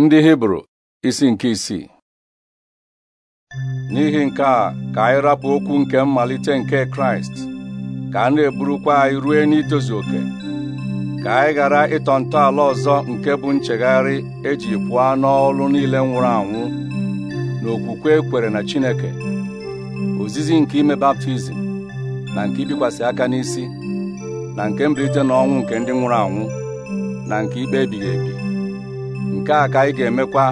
ndị hibru isi nke isii n'ihi nke a ka anyị rapụ okwu nke mmalite nke kraịst ka a na-eburukwa anyị rue n'itozu oke ka anyị ghara ịtọ ntọala ọzọ nke bụ nchegharị eji pụọ n'ọlụ niile nwụrụ anwụ na okwukwe ekwere na chineke ozizi nke ime baptizim na nke ibikwasị aka n'isi na nke mbilite n'ọnwụ nke ndị nwụrụ anwụ na nke ikpe ebighị ebi nke a ka anyị ga-emekwa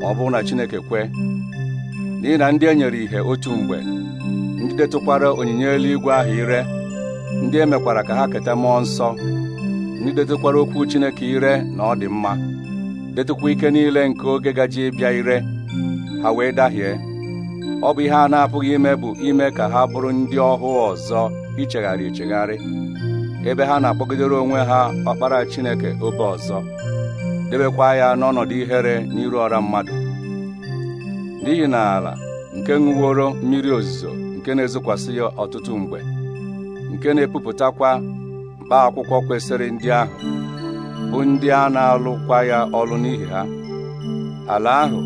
ma ọ bụrụ na Chineke kwe n'ihi na ndị e nyere ìhè otu mgbe ndị detụkwara onyinye eluigwe ahụ ire ndị e mekwara ka ha keta mmụọ nsọ ndị detụkwara okwu Chineke ire na ọ dị mma detụkwa ike niile nke oge gaji ịbịa ire ha wee dahie ọ bụ ihe a na-apụghị ime bụ ime ka ha bụrụ ndị ọhụ ọzọ ichegharị echegharị ebe ha na-akpọgidere onwe ha ọkpara Chineke obe ọzọ debekwa ya n'ọnọdụ ihere n'iru ọra mmadụ n'ihi na ala nke ṅụworo mmiri ozuzo nke na-ezokwasị ya ọtụtụ mgbe nke na-epupụtakwa mkpa akwụkwọ kwesịrị ndị ahụ bụ ndị a na-alụkwa ya ọlụ n'ihi ha ala ahụ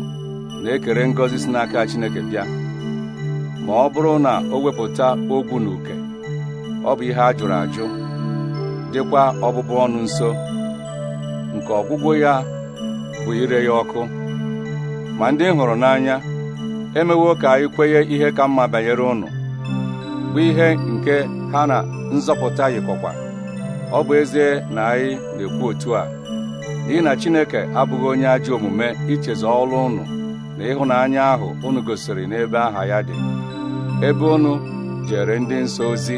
na-ekere ngọzi si n'aka Chineke bịa ma ọ bụrụ na o wepụta ogwu na uke ọ bụ ihe a jụrụ ajụ dịkwa ọbụbụ ọnụ nso nke ọgwụgwụ ya bụ ire ya ọkụ ma ndị hụrụ n'anya emewo ka anyị kwenye ihe ka mma banyere ụnụ bụ ihe nke ha na nzọpụta yikọkwa ọ bụ ezie na anyị na-ekwu otu a n'ihi na Chineke abụghị onye ajọ omume ichezọ ọrụ unu na ịhụnanya ahụ unu gosiri n'ebe aha ya dị ebe unu jere ndị nsọ ozi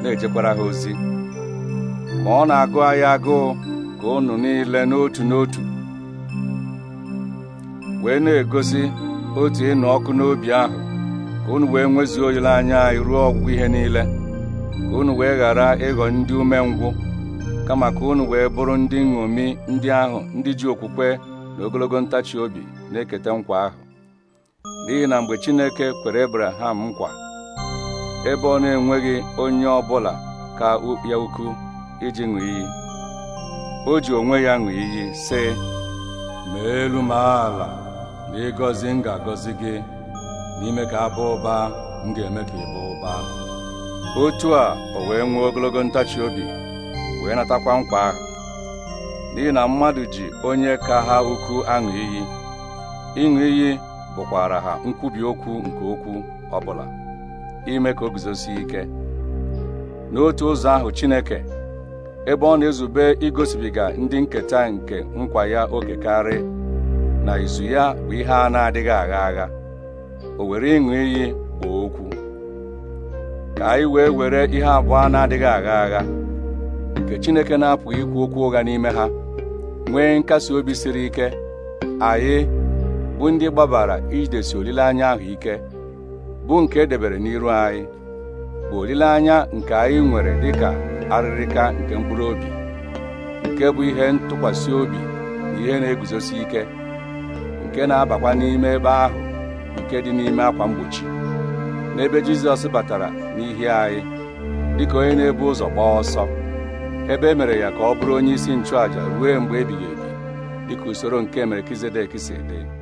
na-ejekwara ha ozi ma ọ na-agụ anyị agụụ ka unu niile n'otu n'otu wee na-egosi otu ịnụ ọkụ n'obi ahụ ka unu wee nwezuo olileanya anyị ruo ọgwụgwụ ihe niile ka unu wee ghara ịghọ ndị umengwụ kama ka unu wee bụrụ ndị nṅomi ndị ahụ ndị ji okwukwe na ogologo ntachi obi na-eketa nkwa ahụ n'ihi na mgbe Chineke kwere ebraham nkwa ebe ọ na-enweghị onye ọ bụla ka ya ukwu iji ṅụ iyi o ji onwe ya ṅụ iyi sị ma elu ma ala ma ịgọzi m ga-agọzi gị n'ime ka abụ ụba m ga-eme ka ịbụ ụba otu a o wee nwee ogologo ntachi obi wee natakwa nkwa ahụ n'ihi na mmadụ ji onye ka ha ukwu aṅụ iyi ịṅụ iyi bụkwara ha nkwubi okwu nke okwu ọbụla ime ka o guzosie ike n'otu ụzọ ahụ Chineke ebe ọ na-ezube igosibiga ndị nketa nke nkwa ya oke karị na izu ya bụ ihe a na-adịghị agha agha o were ịṅụ iyi kpọọ okwu ka anyị wee were ihe abụọ na-adịghị agha agha nke Chineke na-apụghị ikwu okwu ụgha n'ime ha nwee nkasi obi siri ike anyị bụ ndị gbabara idesi olileanya ahụ ike bụ nke edebere n'iru anyị bụ olileanya nke anyị nwere dịka arịrịka nke mkpụrụ obi nke bụ ihe ntụkwasị obi na ihe na-eguzosi ike nke na-abakwa n'ime ebe ahụ nke dị n'ime akwa mgbochi n'ebe Jizọs batara n'ihi anyị dịka onye na-ebu ụzọ gbaa ọsọ ebe e mere ya ka ọ bụrụ onye isi nchụàja ruo mgbe ebighị ebi dịka usoro nke Melkizedek si dị